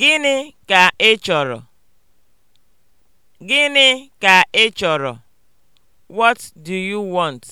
Gịnị ka ị chọrọ? Gịnị ka ị chọrọ? What do you want?